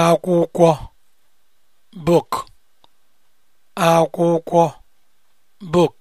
akwụkwọ book akwụkwọ book